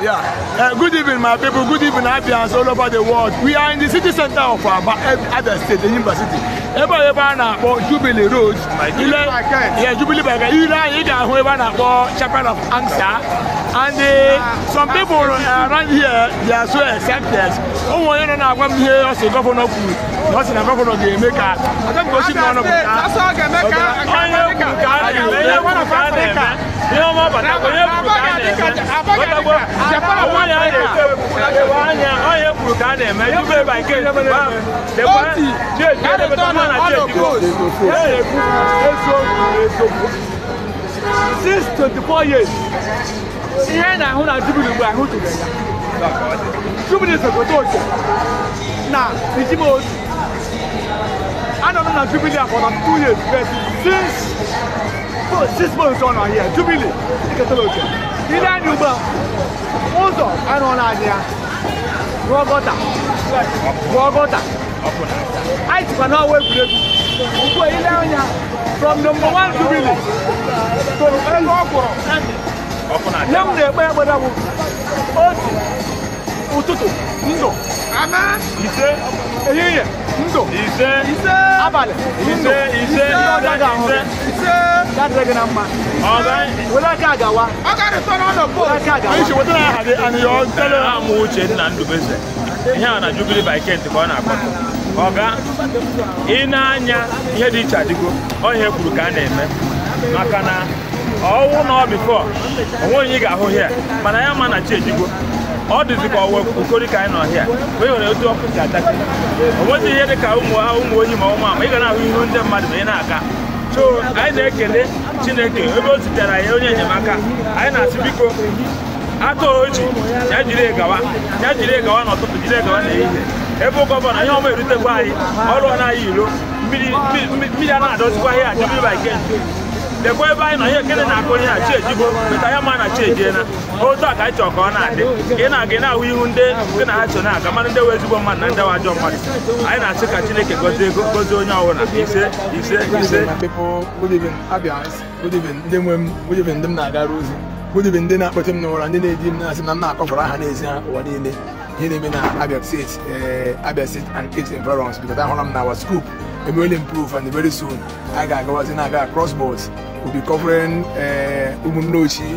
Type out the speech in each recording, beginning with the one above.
Yeah. Uh, good evening, my people. Good evening, Abians all over the world. We are in the city center of our other State, the university. Ebe ebe a na-akpọ Jubilee Road. Ile yeah, Jubilee Baga. Ile anyị ga-ahụ ebe na-akpọ Chapel of Ansa and they, some people around here they are so accepted ọmọ yẹn nana agwa mi yẹ ọsẹ gọvanọ kù ọsẹ na gọvanọ gẹ mẹka ọsẹ gosi mi ọnà kùtà ọnyẹ kùtà ni ọnyẹ kùtà ni ẹmẹ ní ọmọ bàtà ọnyẹ kùtà ni ẹmẹ ọtọgbọ ọmọ yẹn ayẹ ọnyẹ ọnyẹ kùtà ni ẹmẹ yóò bẹ bàyìí kéde bá dẹkọ díẹ díẹ dẹbẹ tó máa nà díẹ dìbò ẹ yẹ kú èso èso six twenty four years ihe na ahụ na jubili mgbe ahụ tụrụ ya jubili sogote oche na ijima otu anọ m na jubili for na two years but since six months ọ nọ here jubili iketela oche ile anyị ugbu a ụzọ anụ na anyị ya rụọ gọta rụọ gọta anyị jikwa n'ọwa egwuregwu ugbu a ile anya from number one jubili toro elu ọ kwụrụ ihe m na-ekpe ekpere bụ otu ụtụtụ ndụ ise ehihie ndụ ise ise abalị ndụ ise ise Ise ga-adịrị gị na mma were aka gawa amụ uche nna ndubeze ihe a na jubili bikent ka ọ na-akpọ ọga ị na-anya ihe dị iche adịgo ọ ihe kwuru ka a na-eme maka na ọwụ na ọ onwe onye ị ga-ahụ hịa mana ya ma na chi ejigo ọ dịzị ka ọwa okori ka anyị nọ hịa wee were otu ọkụ si ataki onwezi ihe dị ka ụmụ onye ma ụmụ ama ị ga na-ahụ ihu ndị mmadụ ma ị na-aga so anyị na-ekele chineke ebe o zitere ya onye enyemaka anyị na-asị biko atụ oji ya jiri egawa ya jiri egawa n'ụtụtụ jiri na n'ehihie ebe gọvanọ ihe ọma erutekwa anyị ọrụ na anyị iro mmiri a na-adọzikwa ihe ajọ mmiri ba ike lekwa ebe anyị nọ ihe ekene na-akụ onye a chi ejibo meta ya ma na chi ejiena otu a ka anyị chọrọ ka ọ na-adị ị na-aga na-ahụ ihu ndị ndị na ha chọ na-aga mmadụ ndị wee ezigbo mmadụ na ndị ajọ mmadụ anyị na-asị ka chineke gozie ego gozie onye ọbụla ise ise ise ndị ndị na-agara ozi gudibin ndị na-akpọte m n'ụra ndị na-eji m na-asị na m na-akọfara aha n'ezi ha ụwa niile ihe na-eme na Abia State Abia State and its environs because ahụla m na our scoop and will improve and very soon I got was in I got crossbows. We'll be covering uh Umunochi,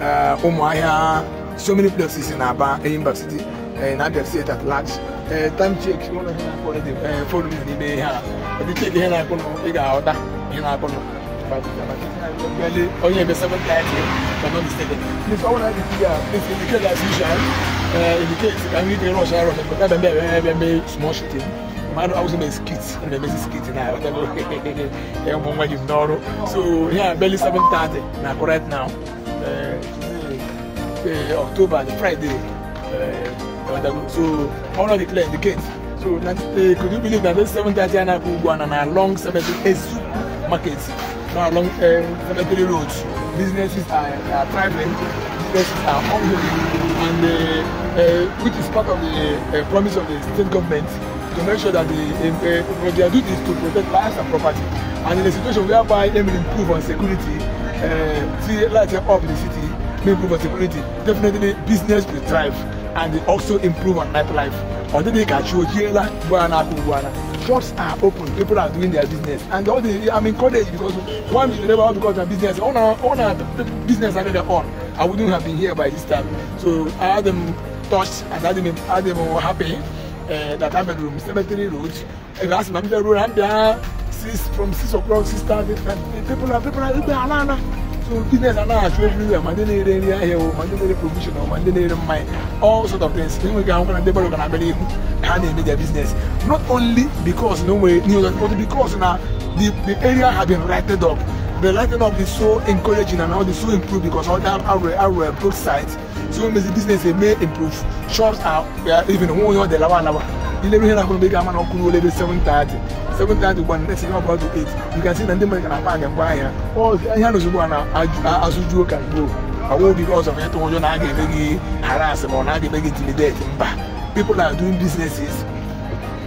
uh Umuaya, so many places in Aba, in Bar City, and Abia State at large. Uh, time check, you want to follow the phone in the day here. If you check here, I can figure out that in Abano. Only the seventh time, if I'm not mistaken. Please, all I did here, please indicate as usual. Uh, indicate, I'm going to rush, I'm going to be small shooting. mmadụ awụsị na skit the emesi skit na bụ nwa gị n'ọrụ so yeah barely 7:30 Now, right now uh, uh, October the Friday uh, so ọrụ declare the gate so uh, could you believe that this 7:30 a na-akụ ugbu a na na long 78 market na long uh, 73 road businesses are, are thriving businesses are ongoing and uh, uh, which is part of the uh, promise of the state government to make sure that the uh, uh, their duty is to protect lives and property. And in a situation whereby they will improve on security, uh, see, lighting up the city, may improve on security, definitely business will thrive and they also improve on nightlife. Although they catch you here, like Buana, Buana shops are open people are doing their business and all the i'm encouraged because one is never one because of business all our business are know their own i wouldn't have been here by this time so i had them touched and had them had them happy That data bedroom cemetery road ẹ̀rọ àti màmí bẹ́ẹ̀ road and there six from six o'clock six thirty people are people na ẹgbẹ́ aláàna so business aláàna aṣọ everywhere màdé ní eré ní here. o màdé ní eré provision o màdé ní eré mine all sort of things We wíwá àwọn kan débọ̀rọ̀ kan abẹ́rẹ́ ihu ha na eme their business not only because no way ni o but because na the the area have been righted up the lighting up is so encouraging and all the so improve because all that are our both sides so when the business dey may improve shops are even one year dey lawa lawa ilé ìròyìn náà kò gbé gàmánà ọkùnrin olóde seven thirty seven thirty one next thing about to eight you can see na ndị mmadụ na paaki ngwa ahịa ọ ihe a n'ozugbo a na-azụju ụka gboo àwọn obi ọzọ onye tụrụ ụjọ na a ga-eme gị harass ma ọ na a ga-eme gị intimidate mba people are doing businesses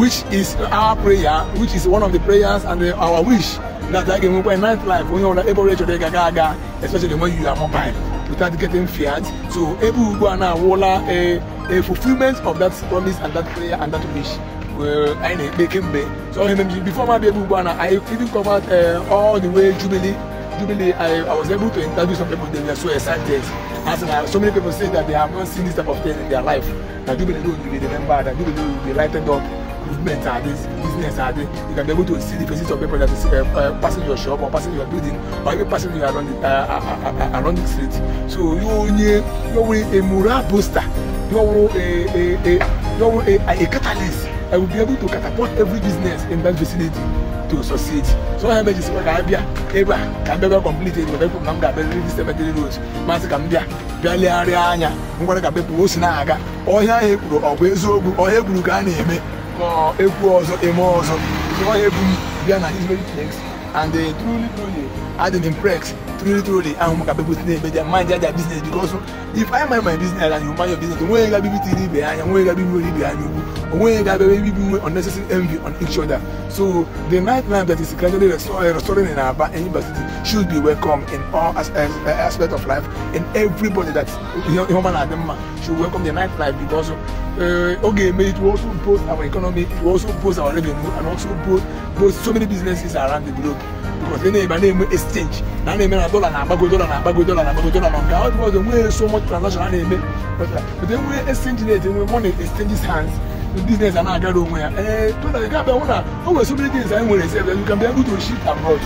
which is our prayer which is one of the prayers and the, our wish That's like when in nightlife, when you're on the able rate, you're gaga, especially when you are mobile without getting feared. So able to go and uh, walla a, a fulfillment of that promise and that prayer and that wish. Well, I make him So before my baby Ghana, I even covered uh, all the way Jubilee. Jubilee, I, I was able to interview some people. They were so excited. As uh, so many people say that they have not seen this type of thing in their life. That Jubilee, they remember that Jubilee will be lighted up movements are there, business are there. You can be able to see the faces of people that is uh, uh, passing your shop or passing your building or even passing you around the, uh, uh, uh, around the street. So you onye you were a morale booster. You were a a a you were a, a, a catalyst. I will be able to catapult every business in that vicinity to succeed. So I imagine say ka bia ebe a ka bia bia complete it bepụ na m ga-abịarịrị dị cemetery road masị ka m bịa bịa legharịa anya ngwara ka bepụ o si na-aga ọhịa ahụ ekwuru ọ bụ eziokwu ọhịa ekwuru ka a na-eme It was a eme ọzọ so ọ ebu m bịa na Israeli flex and uh, truly truly adịghị m prex truly truly àwọn ọmọ kàbẹ́ kò sí ní ẹgbẹ́ jà máa ń jájà business because if I mind my business and you mind your business òun yẹn ga bíbí ti rí ibẹ̀ àyàn òun yẹn ga bíbí orí ibẹ̀ àyàn òun òun yẹn ga bẹ́ẹ̀ bíbí wey unnecessary envy on each other so the nightlife that is gradually eh, restoring in Aba and University should be welcome in all as, as, eh, uh, eh, aspects of life and everybody that human and them should welcome the nightlife because uh, okay it will also boost our economy it will also boost our revenue and also boost, boost so many businesses around the globe. e na-ebe a na-eme exchange na na-eme na dọla na-agbago dọla na-agbago dọla na-agbago dọla na nke ahụ nwere so much transaction a na-eme but exchange na-ete nwe money hands business a na-agara onwe ya ee tụna ị ga-abịa hụ na o nwere so many things anyị nwere esi ebe you can ndị able abroad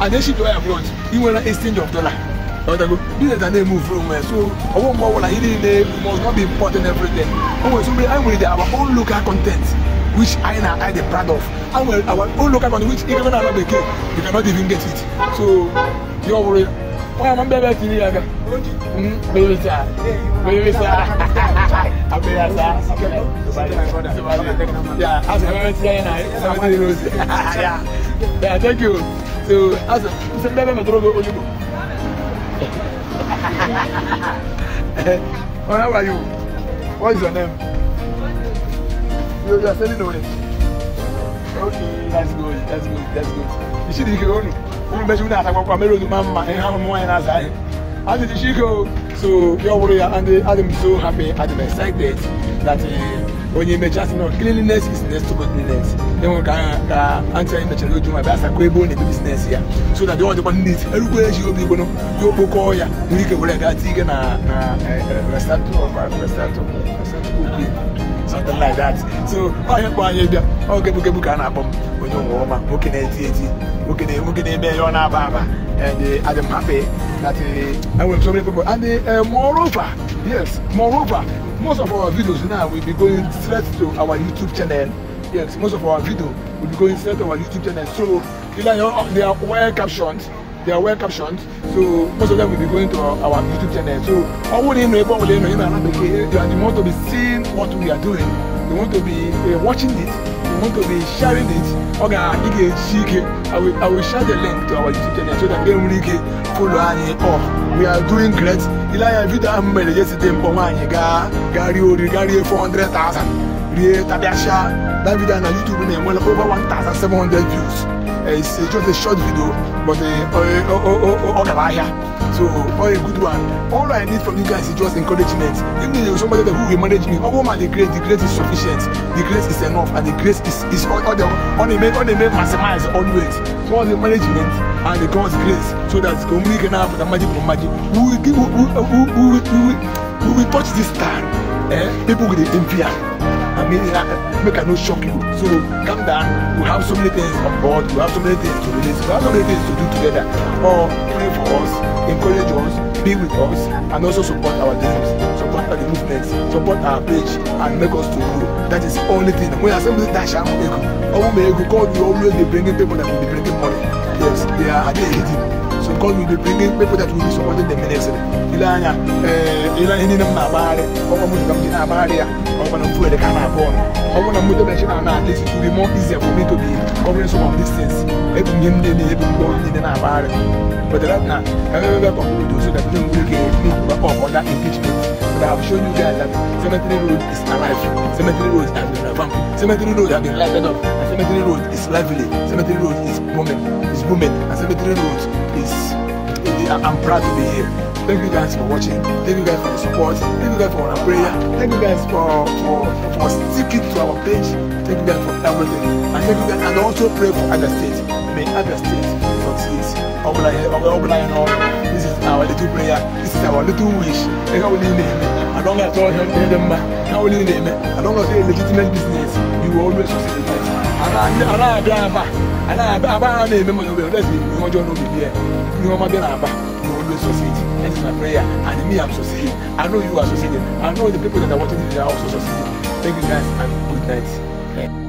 and then ship abroad ị nwere exchange of na-eme onwe ya so ọwụ mgbe ọbụla ihe niile must not so many anyị nwere local content which I and I are proud of. And well, our own local money, which even our another you cannot even get it. So, you're worried. Why am I better to you? Baby, sir. Baby, sir. I'm better, sir. Yeah, as I am here and I, Yeah, yeah, thank you. So, as a baby, I'm going to go. How are you? What is your name? you, are selling already. Okay, that's good, that's good, that's good. You see the Ikoni? Wọ́n bẹ́ẹ̀ ṣe wọ́n àtàkùn ọkọ̀ mẹ́rin ojú to ń ma ẹ̀ hàn mọ́ ẹ̀ náà sáyé. As go. So, your warrior and the, I'm so happy and I'm excited that when you mention you know, cleanliness is next to godliness. Then we can uh, answer in the channel to my best equable in the business here. So that you want to that it everywhere you be going to go you all ya. We can go like that. Eh, eh, restaurant, restaurant, restaurant something like that so onye kpọọ anyị bịa oge bụgebu ka a na-akpọ m onye ụwa ọma nwoke na-eti eti nwoke na-eme ihe ọ na-aba aba and oh, I uh, am happy that uh, I will so many people and uh, moreover yes moreover most of our videos now will be going straight to our YouTube channel yes most of our video will be going straight to our YouTube channel so they are well captioned they are well captioned so most of them will be going to our, our youtube channel so ọwọ́ nínú ẹgbọ́n wọlé nínú ìlànà àbẹ̀kẹ́ and you want to be seeing what we are doing They want to be uh, watching it They want to be sharing it Okay, ị i will i will share the link to our youtube channel so that enwere ike follow anyị up we are doing great ile anya vidio ahụ mere yesterday mkpọ nwaanyị gaa gaa rie oriri gaa rie 400,000 rie tabiacha that video na youtube na-enwere over 1,700 views it's just a short video, but all about here. So, all a good one. All I need from you guys is just encouragement. Even if somebody who will manage me, oh man, the grace, the grace is sufficient. The grace is enough, and the grace is, is all, all, the, only they only all they make maximize always. So, all the management and the God's grace, so that we can have the magic of magic. We will, we will, we will, we we will touch this star. Eh? People with the empire me, uh, make I no shock you. So calm down. We have so many things on board. We have so many things to release. We have so many things to do together. Or pray for us, encourage us, be with us, and also support our dreams, support the movements, support our page, and make us to grow. That is the only thing. We are simply that shall make, I will God. You always be bringing people that will be bringing money. Yes, they are. They are So God will be bringing people that will be supporting the ministry. Ilanya, ila hini na mabare, kwa mtu kama jina mabare ya, kwa mtu mfuwe de kana bon. Kwa mtu mtu mtu na na this it will be more easier for me to be covering some of these things. Ebu nyimde ni ebu mbo ni na mabare. But that na, ebe ebe kwa mtu so that you will get me kwa kwa that impeachment. But I have shown you guys that cemetery road is alive. Cemetery road has been revamped. Cemetery road has been lighted up. Cemetery Road is lively. Cemetery Road is booming. It's booming. And Cemetery Road is. I'm proud to be here. Thank you guys for watching. Thank you guys for the support. Thank you guys for our prayer. Thank you guys for for, for sticking to our page. Thank you guys for everything. And thank you guys and also pray for other states. May other states succeed. This is our little prayer. This is our little wish. I don't know how all help them. as don't know legitimate business. You will always succeed in life anaadaba anaadaba ara na eme mana obere ọdẹsi ni ọjọ n'obi bi ẹ ni ọma bi aba na olu sọseji that is my prayer and me I'm succeeding I know you are succeeding I know the people that are watching this are also succeeding thank you guys and good night. Yeah.